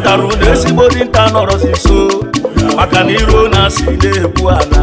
ọdara ụda ezigbo dinta nọrọzi nso maka na iro na-asị na-ekwu ala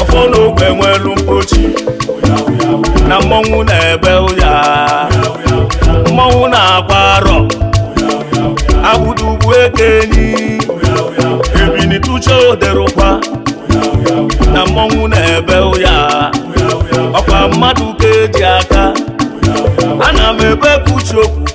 ọfọ n'ogbe nwelu mkpochi na mmọnwụ na-ebe ụya mmọnwụ na-agba arọ agbụdo ugwu ekenyi ebini tụcha oderụkwa na mmọnwụ na-ebe ụya ọkwa mmadụ ka eji aka ana m ebe kuchi okwu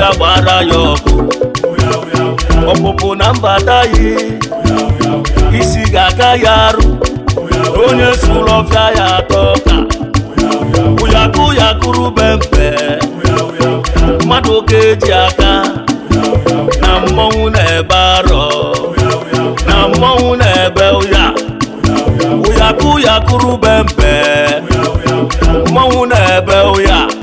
ya gbara ya ọkụ ọpụpụ na mbata ya isi ga ya arụ onye ọfịa ya atọ ka ụyakụ ya kụrụ be mpe mmadụ ka eji aka na mmọnwụ na-ebe arọ na mmọnwụ na-ebe ụya ụyakụ ya kụrụ be mmọnwụ na-ebe ụya